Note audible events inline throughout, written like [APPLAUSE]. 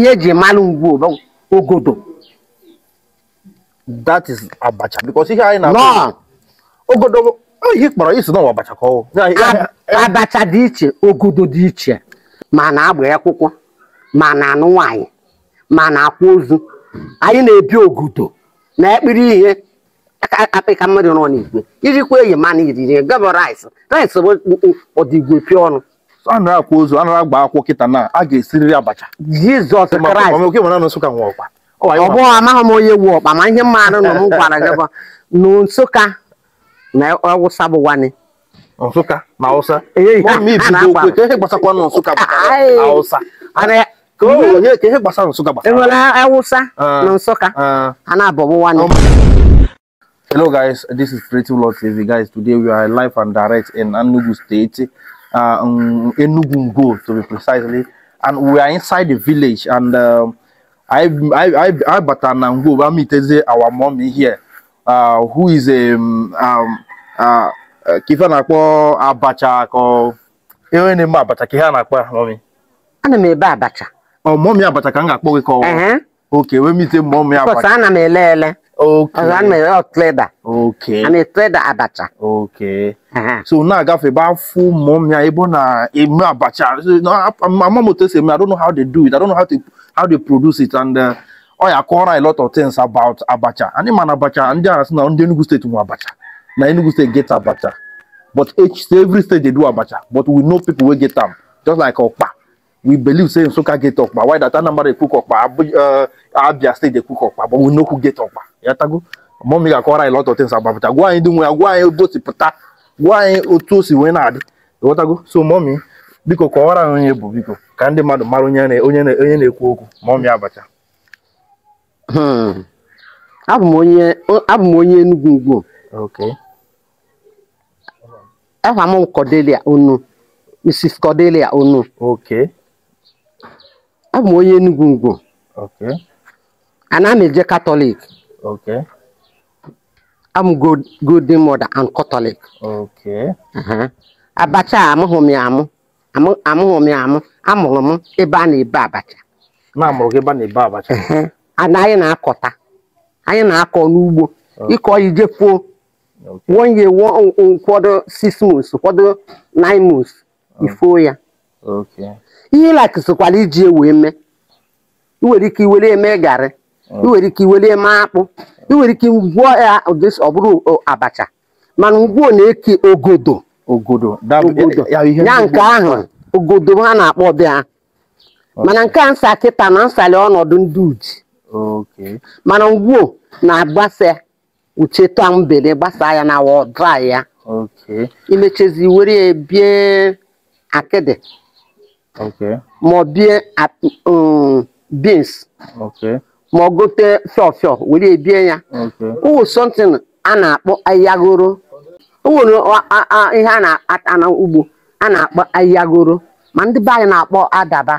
ihe e ji mmanụ ngwu ogodo that is abacha because ihe anyị na dị iche ogodo dị iche ma na agba akwụkwọ ma na anụ nwanyị ma na akwụ ozu anyị na-ebi ogodo na ekpiri ihe akpịka mmadụ nọ n'igwe irikwa eyi mana iriri gabọ rice rice bụ pịa ọnụ a nara akwa ozu a agba akwụkwọ kịta na a ga-esiriri abacha jizọs kraịst ọ amaghị m onye wu ọkpa ma ihe mmadụ nọ m gwara gị bụ na nsụka na ọwụsa bụ wani nsụka na awụsa na nsụka ah. a na-abọbụ wani Hello guys, this is TV. Guys, today we are live and direct in Anugu State. uh, um, Enugu to be precisely. And we are inside the village and um, I, I, I, I Batanango, Bamiteze, uh, our mommy here, uh, who is a, um, um, uh, na-akpọ abacha or ihe na-eme abacha ka a na-akpọ mọmi ana m ebe abacha ọ oh, mọmi abacha ka m ga-akpọ gị ka ọ oke wee mite mọmi abacha ana m ele ele Okay. Around my real trader. Okay. And a trader abacha. Okay. So now I got about full mom ya ebo na emu abacha. So now my mom will tell me I don't know how they do it. I don't know how to how they produce it and uh, oh yeah, a lot of things about abacha. And man abacha and there is now in Enugu state mu abacha. Na Enugu state get abacha. But each every state they do abacha, but we know people will get them just like Okpa. we believe say Nsukka get Okpa why that Anambra ekwu Okpa Abia State ekwu Okpa but we no who get Okpa yatago mọmi ga-akọrọ anyị lot of things about pụta gwa anyị ndị nwe ya gwa anyị otu o gwa anyị otu o si wee na-adị ghọtago so mọmi biko kọwara anyị onye bụ biko ka ndị mmadụ mara onye na-ekwu okwu mọmi abacha hmm. abụ m onye Enugu ugwu afa m Cordelia Onu Mrs Cordelia Onu abụ m onye Enugwu Ngwo ana m eje katọlik am m Mọda an Katọlik. Catholic uh-huh. abacha amụghị m ya amụ amụghị m ya amụ amụrụ m ebe a na-ebe abacha uh-huh. anyị na-akọta anyị na-akọ n'ugbo ịkọ ije kwuo, wonye ụfọdụ sis months ụfọdụ nine months ifuo ya ihe ịlakụ sokwara iji wee mee ị nwere ike iwere eme garị iwere ike iwere eme akpụ iwere ike gwụọ ya ọ bụrụ abacha mana ugbu na-eke ogodo ya nke ahụ ogodo ha na-akpọ bịa mana nke a nsa kịta na nsali ọnọdụ ndị uji mana ngwuo na-agbasa ucheta mgbede gbasa ya na wọdrai ya imechezi were bie akịdị okay. ma bie um, beans okay. ma ọ gote fiọfiọ were ebie ya ụwụ something a na-akpọ ahịhịagoro ụwụrụ ihe a na-ata n'ugbo a na-akpọ ahịhịagoro ma ndị be na-akpọ adaba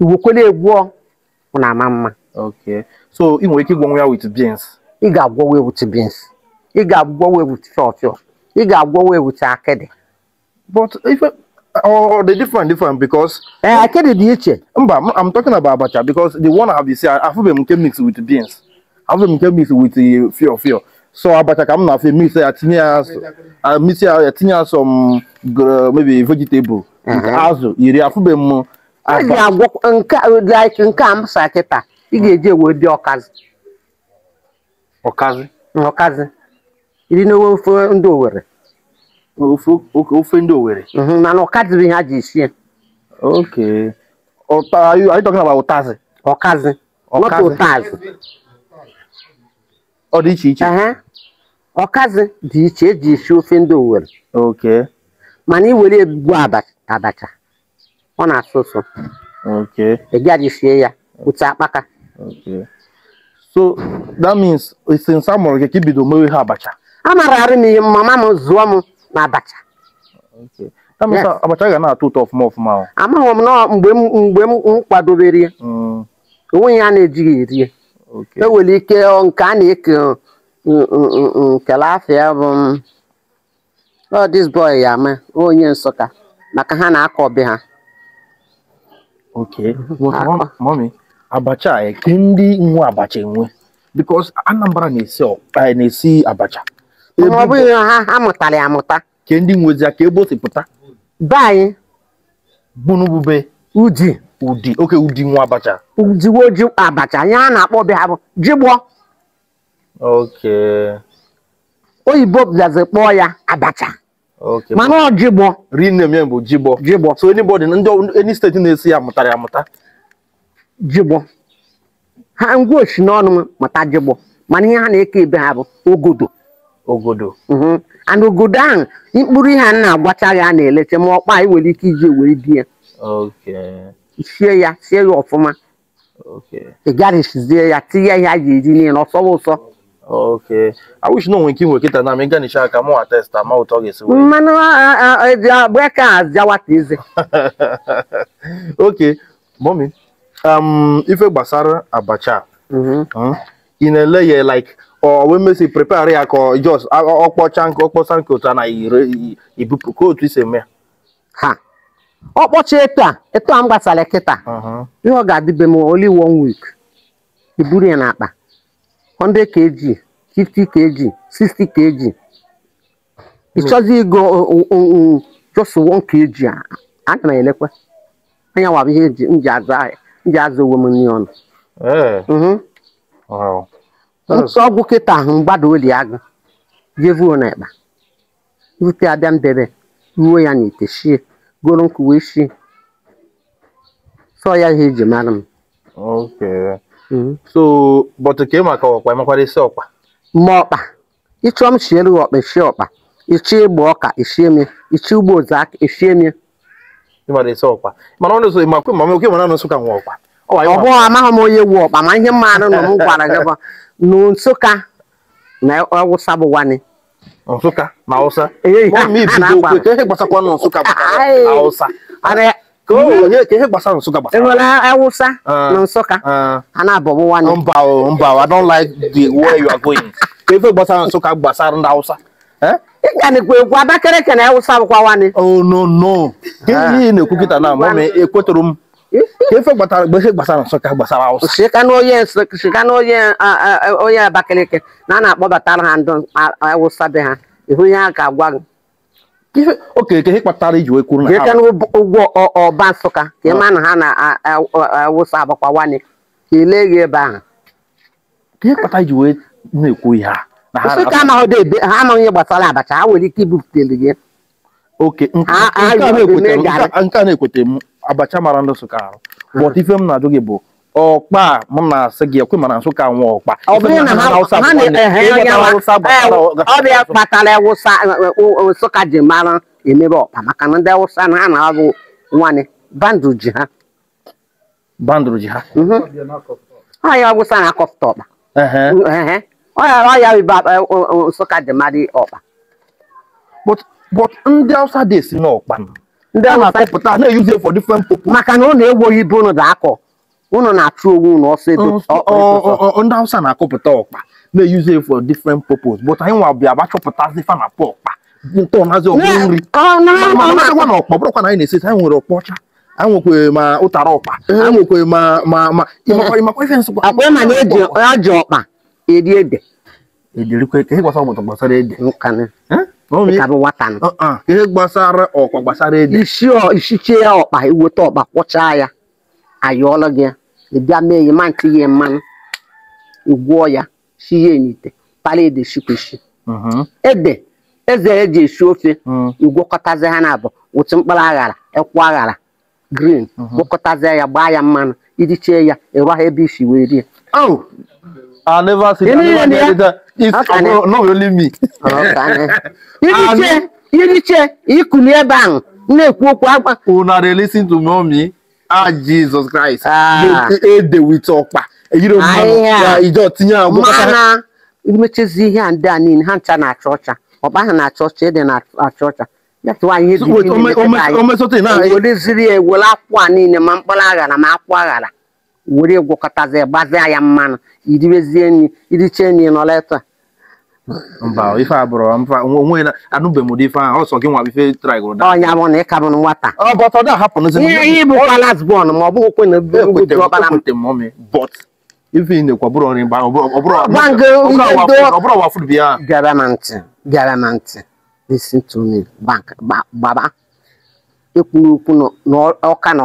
igwekwere egwuọ na ama mma so ị nwere ike ịgwọnwe ya with beans ị ga-agwọwe with beans ị ga-agwọwe with fiọfiọ ị ga-agwọwe with akịdị but ife Oh, oh, oh, they're different, different because. Eh, I can't the Mba, I'm talking about abacha because the one I have is I have them can mix with beans. I have them with the fear fear. So abacha come na fe mix a tinye I mix I tinye some maybe vegetable. Azụ, iri afube m. I like nka am saketa. Ị ga eji wee bịa ọkazi. Ọkazi. Iri ndị Owerri. ofe ndị Owerri. Mhm, mana ọkazị bụ ihe a ji sie. Okay. Are you, are you talking about ụtazị? Ọkazị. Ọkazị. Not ụtazị. Ọ dị iche iche. Ọkazị dị iche eji esi ofe ndị Owerri. Okay. Mana iwere ebugbu abacha ọ na-asụ ụsụ. Okay. Ị gaghị sie ya otu akpaka. Okay. So that means since a mụrụ gị ka ibido mewe ha abacha. A mara arị m ihe mama m zụọ m n'abacha. abacha abacha ga na-atọ ụtọ ọfụma ọfụma amaghị m nọ mgbe m kwadobere mm. onwe ya na-ejighị erie enwere ike nke a na-eke nkele afịa bụ ọ dis boy ya ama onye nsụka maka ha na-akọ be ha Ok, [LAUGHS] abacha eke ndị nwe abacha enwe because anambra na-esi abacha ọ bụghị ha amụtara amụta ke ndị nwezi aka egbosipụta be anyị bunubube uji ụdị oke ụdị nwa abacha ujiwe ji abacha ihe a na-akpọ be ha bụ jigbọ oyibo bịazi kpọọ ya abacha mana ọ jigbọ rinem bụ jigbọ jigbọ so anybody ndị any steeti na-esi ya mụtara amụta. jigbọ ha ngwa osi n'ọnụ mụta jigbọ mana ihe ha na-eke ebe ha bụ ogodo ogodo mhm. and ogodo ahụ mkpụrụ ihe a na-agbacha ya a na-elecha ma ọkpa anyị nwere ike iji wee di ya sie ya sie ya ọfụma ị garisizie ya tinye ihe a ga-eji niile ọsọwa ụsọ awụchi na onwe nke nwere kịta na m ịganisha aka mụnwa testa ma ụtọ ga-esi mmanụ breka azịawata eze [LAUGHS] oke mọmi um, ife gbasara abacha mhm. hmm? ị na-ele ya like ọ wee mesi prepare ya ka jos ọkpọcha nke ọkpọsa nke ụta na ibupụ ka otu isi eme ha ọkpọcha etu a eto a m gbasara kịta ihe ọ ga-adịbe m only one week iburu ya akpa 100 kg 50 kg 60 kg ịchọzi ịgo jos 1 kg ana m elekwe anya wabụ ihe nji azụ onwe m nri ọnụ ntụ ọgwụ kịta ahụ mgbada oli agụ jevuo na ịkpa rute abịa mbebe ruo ya n'ite shie goro nkụ wee shie sọ ya ihe eji mara m mm. so bọtụ ka ị maka ọkpa makwara isi ọkpa ma ọkpa ịchọ m chiere ọkpa eshie ọkpa ichie ịgba ọka eshie mie ichie ugbo ozu aka eshie mie ịmara isi ọkpa mana ọ na-eso ịmakwe ma oke mara na nsụka nwa ọkpa ọbụ amaghị m onye wu ọkpa ma ihe mmadụ nọ m gwara gị bụ n'Nsụka na Awụsa bụ wani Nsụka na Awụsa Enwere Awụsa na Nsụka a na-abọbụ wani mba mba I don't like the way you are going ife gbasara Nsụka gbasara ndị Awụsa ịganịkwa egwu Abakaliki na Awụsa bụkwa wani oh no no ihe na-ekwu kịta na mama ekwetụrụ m ife gbasara mgbe ihe gbasara nsụka gbasara awụsa sika na onye sika na onye uh, uh, onye abakaliki na a na-akpọbatara ha a awụsa be ha ihu ya a ga-agwa gị okeke ihe kpatara iji wee kwuru na ha ụgwọ ọba nsụka ka ịma ah. na ha na awụsa agbakwawane ka ile gị ebe ahụ ihe kpatara iji wee na-ekwu ihe a nsụka amaghị ha amaghị ihe gbasara abacha ha nwere ike ibupụtere gị oke nke a na-ekwetara m abacha mara ndị Nsụka ahụ but ife m na-ajụ gị bụ ọkpa m na-asị gị ekwe mana Nsụka nwe ọkpa ọbịa kpatara Nsụka ji mara emebe ọkpa maka na ndị Awụsa na ha na-arụ nwanne bandụ ji ha bandụrụ ji ha mhm. ọya Awụsa na akọfụta ọkpa ọya ibe Nsụka ji mara ọkpa but ndị Awụsa dị esi n'ọkpa ndị a na-atapụta na-eyuzi for different purpose maka na ọ na ewu oyibo ụnụ ga-akọ ụnụ na-achụ onwe ụnụ ọsọ ndị awụsa na-akọpụta ọkpa na-eyuzi for different purpose but anyị nwa bịa gbachọpụtazi fa na pa ọkpa ntọnazi ọkpụ nri ọkpa na ọkpa bụrụkwa na anyị na-esesi anyị nwere ọkpa ọcha anwekwe ma ụtara ọkpa anwekwe ma ma ma ịmakwa ife nsụkwa akwa ịma na eji ọkpa eri ede edirikwe ka ịgwasa ọmụtụ gbasara ede ihe gbasara ọkwa gbasara ede ishichie ya ọkpa iweta ọkpa kwọchaa ya ayọọla gị ya ịbịa mee ya ma nke ya mmanụ igwụọ ya shie ya n'ite para ede shikweshi mhm. ede eze eji esi ofe igwọkọtazi mhm. ha na abụ otu mkpụrụ aghara ekwu aghara grin, mhm. gwọkọtazie ya gbaa ya mmanụ iji chee ya ịrụ ha ebe isi wee rie not only me. [LAUGHS] ebe ahụ na-ekwu okwu akpa. listen to Ah Jesus Christ. Ede wit ọkpa. mmanụ imechezi ihe a ndị a niile ha ncha na achọ ọcha. Ọkpa ha na achọ ọcha, ede na achọ ọcha. Ya tụwa ihe ya, niile ma mkpụrụ aghara ma akwụ aghara. were gwọkọtazie gbazia ya mmanụ iribezie nri iriche nri nọla etu a mba ife abụrụ mfa onwe na anụbe ụdị ife ahụ ọsọ gị nwa ife traịgụrụ da ọnya bụ na ị bụ nwata ihe ịbụ kwalas bọọlụ ma ọ bụghị kwe na e e ife ị na nri ọbụrụ ọwa bịa na ntị na ntị bank gbaba ekwuru okwu na ọka nọ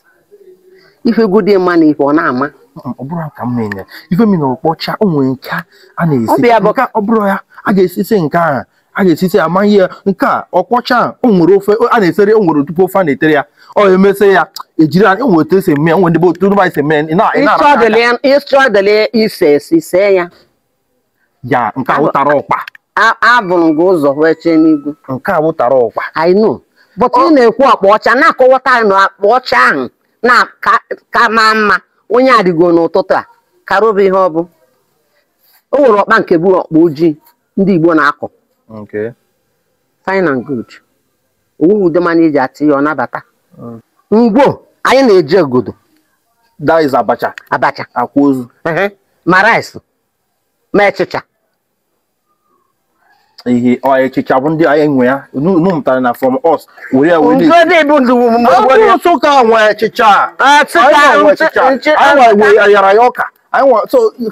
ife ego dị mma na ife ọ na-ama ọ bụrụ ka m na-enye ife mi na ọkpọcha o nwere nke a na-esi Nke ọ bụrụ ya a ga esisi nke a a ga esisi ama ihe nke a ọkpọcha o nwere ofe a na-esere o nwere tupu ofe a na-etere ya ọ emesịa ya ejiri anya nwere otu esi eme ya nwere ebe otu ndị esi eme ya ịchọdịle ise esi see ya ya nke awụtara ọkpa abụrụ gị ụzọ wee chee n'igwe nke awụtara ọkpa anyị nụ bọtụ ị na-ekwu ọkpa ọcha na-akọwata na akpa ọcha ahụ na ka maa mma onye adịgo n'ụtụtụ a karụba ihe ọ bụ o nwere ọkpa nke bụ ọkpa ojii ndị Igbo na-akọ fine and good ude mana eji atụ ya ọ nabata Ngwo anyị na-eji ogodo abacha abacha ma rice ma echicha. ihe ọ echicha bụ ndị anyị nwe ya nụ mụtara na from us were were bụrụ ka nwe echicha anyị nwe ayara ya ọka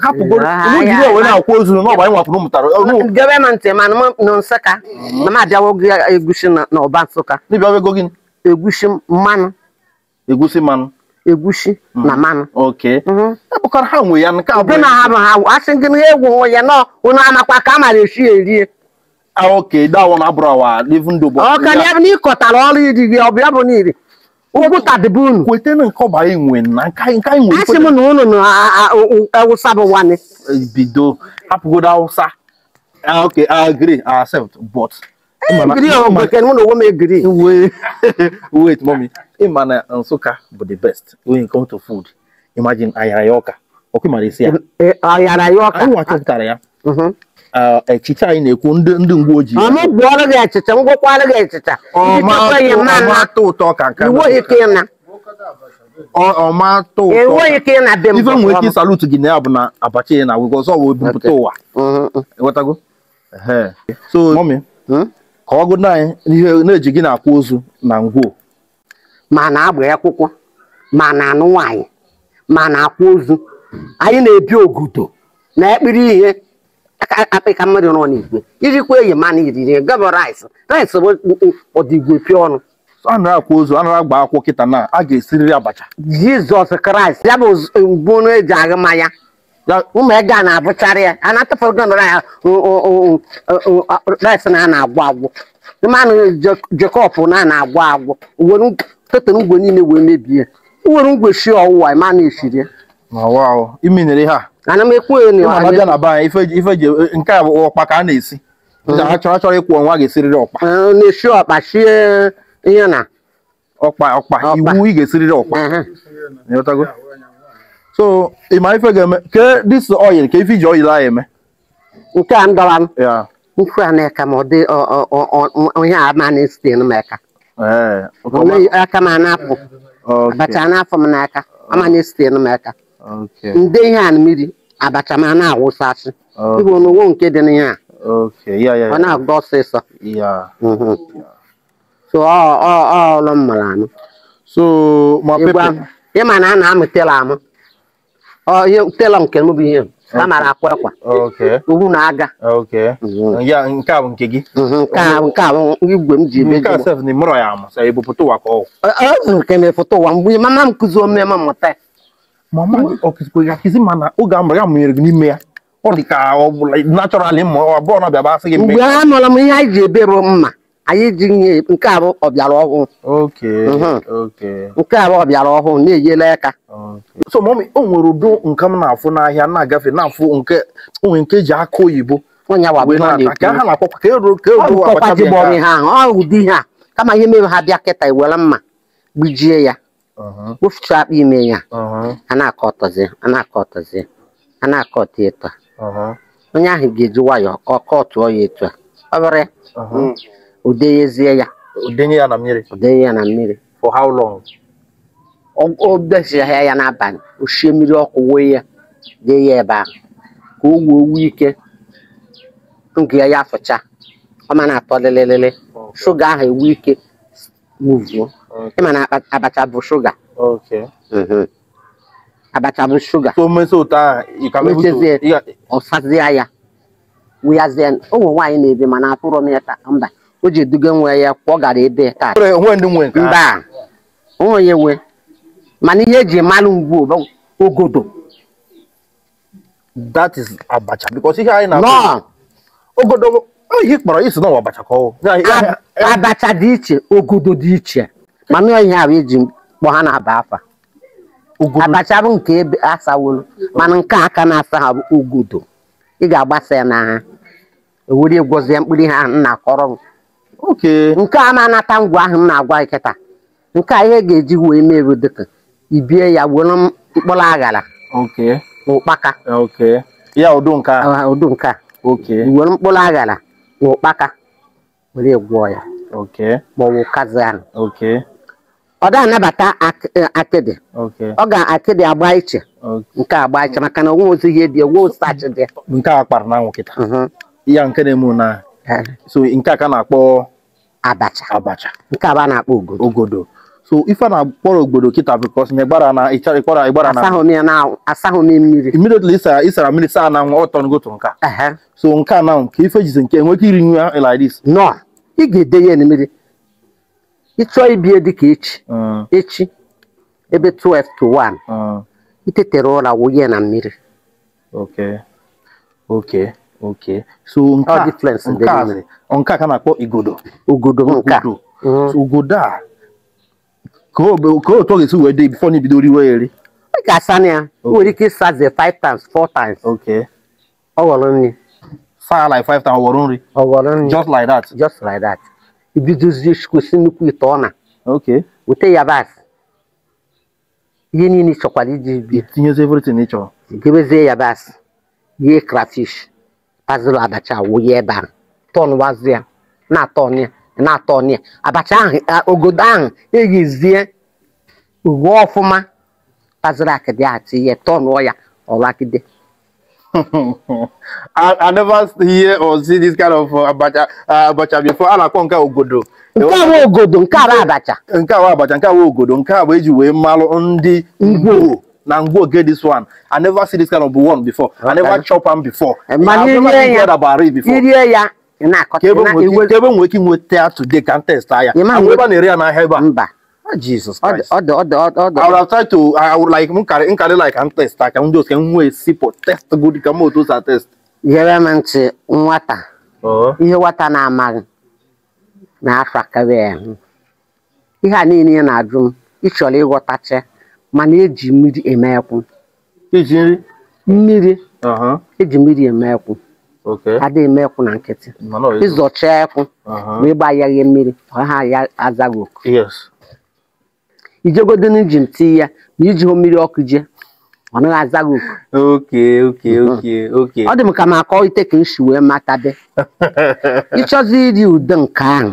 hapụgorụakwa ozu anyị gebe ntị ma nsụka na mm-hmm. abịawo gị na-ọba nsụka ego gị Egwusi mmanụ Egwusi mmanụ Egwusi na mm-hmm. mmanụ mm-hmm. e ha nwe ya nke abụọ na ha na egwu ya a mara esi erie Ah, okay that one abrawa even though but okay yeah. ni kota lo ri di obia bo ni ri ugu tadibun kwete na nko ba inwe na nka nka inwe asi mu no no awusa bo wani bido hapugo da awusa okay i agree i accept but eh, agree on oh, but can mu no wo me agree wait [LAUGHS] wait mommy imana nsuka but the best when it comes to food imagine ayayoka okay marisia eh, ayayoka i want to tell ya mhm echicha anyị na-ekwu ndị ndị uwe ojii ọmụgwọrọ gị echicha ngwụkwara gị echicha ọmatụ ụtọ ka nke ọmatụ ụtọ ife nwere ike ịsalụtụ gị na ya bụ na abacha ya na awụgwọ ọzọ wee bupụta ụwa ewetago so mọmi ka ọ gụna anyị ihe na-eji gị na akwụ ozu na ngwoo ma na-agba akwụkwọ ma na-anụ nwaanyị ma na akwụ ozu anyị na-ebi ogudo na ekpiri ihe akpịka mmadụ nọ n'igwe ijikwa eyi mana iriri gaba rice rice ọdịgwe pịa ọnụ a akwa ozu a na agba akwụkwọ kịta na a ga-esiriri abacha jizọs kraịst ya bụ mgbu eji ụmụ ego a na ya a na ya rice na a na-agwụ agwụ mmanụ na na-agwụ agwụ ngwe niile wee mebie were ngwe shi ọwụwa mana nyere ha ana m ekwu abịa na be anyị ife ji nke a ọkpa ka a na-esi ndị hmm. ha chọrọ chọrọ ịkwụ ọnwa ga-esiriri ọkpa na-esi ọkpa sie ihe na ọkpa ọkpa iwu ị ga-esiriri ọkpa so ị ma ife ga-eme ke dis oil ka ife iji oil anyị eme nke a ndọra m nkwe a na-eka ma ọ dị onye a ma na esite m eka aka m anapụ abacha n'afọ m n'aka ama na esite m eka Ndị ihe a mmiri abacha ma na-awụsasị ibu n'ụwo nke dị n'ihe a, ọ na-agba ọsịsọ mhm. so ọlụ mmara anụ ịma na a na-amụ tela amụ tela nke mụ bụ ihe a mara akwa akwa ugwu na aga nke a bụ nke gị mhm, nke a bụ igwe m ji ebe nke m foto ụwa mgbe mama m kụzi omeme mmụta mama gị ọ kụzikwara ma na oge a mụrụ ya mụnyere gị n'ime ya ọ dị ka ọ bụla nachọralị ma ọ bụrụ na bịaba asị gị mgbe a nụla m ihe anyị ji ebe bụ mma anyị ji nye nke arụ ọbịara ọhụụ mhm. nke arụ ọbịara ọhụụ na-enyela aka so mọmi o nwere udo nke m na-afụ n'ahịa na-agafe na-afụ nke onwe nke eji aka oyibo ka ha na-akpọkwa ka e ka eruo ụdị ihe a kama ihe mere ha bịa kịta ewere mma gbijie ya wụfucha akpụ ime ya a na-akọ ọtọzi a na-akọ ọtọzi a na-akọ ọtọ eto onye ahụ ga-eji nwayọọ ka ọ kọtụọ ya etu a ọ bụrụ udenyezie ya udenye ya na mmiri udenye ya na mmiri for how long o besịa ya n'abalị o oshie mmiri ọkụ wee ya dee ya ebe ahụ ka o wuo owu ike nke ya ya fụcha ọ ma na-atọ lịlịlịlị shuga ahụ ewu ike muvuo ịma na abacha bụ shuga abacha bụ shuga ọsazie ya wụyazie ụmụ nwaanyị na-ebe mana atụrụ m ya mba o ji eduga nwe ya kwọ gara ebe taa mba onye nwe mana ihe eji malụ ngwu ogodo that is abacha because ihe anyị oh, na ogodo ihe kpọrọ isi na abacha ka abacha dị iche ogodo dị iche mana ihe ahụ eji kpọ ha na-aba afa abacha bụ nke ebe asawolu mana nke a aka na-asa ha bụ ugudo ị ga-agbasa ya n'agha ewere gwozie mkpụrụ ihe ahụ na-akọrọ m nke a na-anata ngwa ahụ m na-agwa nkịta nke a ihe ga-eji wee meru dịka ibie ya were mkpụrụ aghara na ụkpaka ụdụ nke a were mkpụrụ aghara na ụkpaka were gwọọ ya maọbụ kazi ahụ ọ da anabata eh, akịdị ọ ga-akịdị agba iche nke agba iche maka na onwe ozi ihe dị onwe osachi dị nke a kpara na anwụ ya mhm. nke na-eme na so nke a ka na-akpọ abacha abacha nke a na-akpọ ogodo ogodo so ife na-akpọrọ ogodo kịta bikos na ịgbara na ịchara ịgbara na asahụ na, mmiri mmiri otula ịsara mmiri saa na nwa ọtọ ngotu nka so nke a na ka ife jizi nke enwe ike iri nwa eh, iladis nọ ị ga-ede ya mmiri chọọ ibie dịka echi ah. echi ebe 12 to 1 ah. itetere ụra wụnye na mmiri so nke a ka na igodo ogodo nka mhm. ogodo a ka otu ọ ga-esi wee dị bifọ n'ibido riwe eri ị ga nwere ike ịsaze 5 times 4 times Ok. nri like 5 times ọ ghọrọ nri just like that just like that ibidozi gosi nnukwu ite ọna weta yabasị ihe niile chọkwara iji bia gebezie yabasị yie krafish pazụlụ abacha wụnye ebe ahụ tọn wazụ na-atọn na-atọn ya abacha ahụ ogodo ahụ eghezie uwe ọfụma pazụlụ akịdị atị ihe tọnụọ ya ọlakide I, I never hear or see this kind of uh, abacha uh, abacha before a na-akpọ nke ogodo nke a ogodo nke abacha nke a abacha nke a ogodo nke a bụ eji wee malụ ndị ngwo na ngwo get this one I never see this kind of one before I never chop am before eh, i irie ya ka ebe nwere ike inweta today ka m testa ya mgbe ebe a na-ere ya n'ahịa ebe a Jesus Christ. Ọ dị ọ dị ọ dị to I would like m like test test good test. ntị nwata. Oh. Ihe nwata na-amaghị na-afọ akarị Ihe a niile ya na-ajụ m ịchọrọ ịghọtacha mana eji mmiri eme ekwu. Iji nri? Mmiri. Eji mmiri eme ekwu. Ada eme ekwu na nkịtị. Ịzọcha ekwu ma ịgba ya mmiri ha ya azaghị oku. ijegodo n'iji tii ya ma iji hụ mmiri ọkụ jee ọ naghị aza gị oku hm. ọ dị m ka m akọ ite ka m wee wee matabe [LAUGHS] ịchọzi iri ude nke ahụ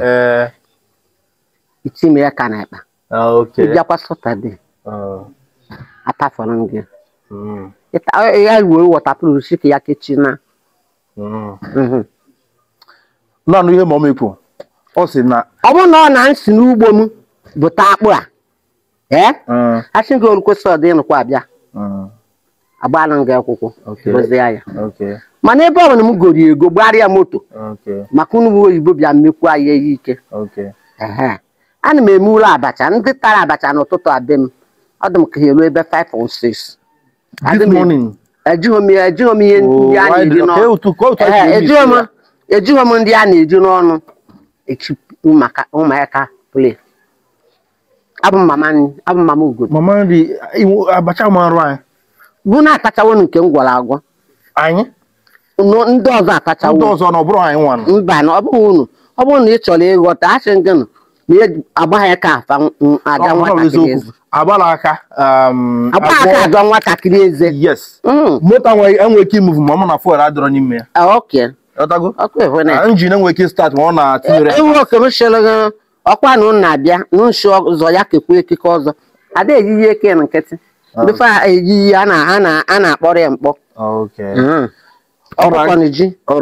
itime ya ka na akpa ah, ịbịakwa satọde ah. atafọrọ m gị hmm. e, ya ruo wọtapụrụ si ka ya kechina hmm. mhm. naanị ihe ma ọ mekwu ọ sị na ọ bụrụ na ọ na-esi n'ugbo m bụta akpụ a ee achị gị olu kwesịrị abịa agbala gị mana ebe ọ m goro ego gbarịa moto maka unu oyibo bịa mmekwu ike ihe ike ana m eme ụlọ abacha ndị tara abacha n'ụtụtụ abịm, m ọ dị m ka ha eruo ebe 5 on 6 ejighị m ihe ndị a na-eji n'ọnụ echi ụmụaka play abụ mama abụ mama ugo mama nri abacha marụ anyị bụ na akachawo nke m gwara agwọ anyị ndị ọzọ akachawo ndị ọzọ na ọ bụrụ anyị nwanụ mba na ọ bụghị unu ọ bụrụ na ị chọrọ ịghọta achị gị nụ na e, agbaghị ka afa ada nwatakịrị eze agbara aka um, agbara aka adọ nwatakịrị eze yes moto mm. enwere ike imuvu ma ọ na fuel adịrọ n'ime ya ah, ok njin enwere e ike start ma ọ na-atụnyere enwe e, oke m chere ọkwa na ụnụ na-abịa n'ụsụ ya kekwe ekike ọzọ ada eyiyi eke nkịtị oh. befe eyiyi a na-akpọrọ ya mkpọ oh, All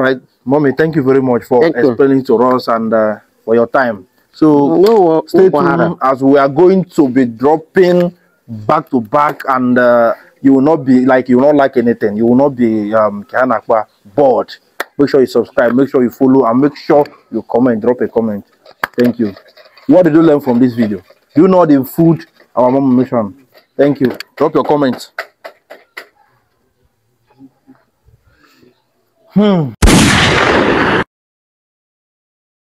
right, mommy, thank you very much for explaining to us and uh, for your time. So mm, uh, stay tuned as we are going to be dropping back to back, and uh, you will not be like you will not like anything. You will not be um Kihanakwa bored. Make sure you subscribe. Make sure you follow, and make sure you comment. Drop a comment. Thank you. What did you learn from this video? Do you know the food our mom mission? Thank you. Drop your comments. Hmm.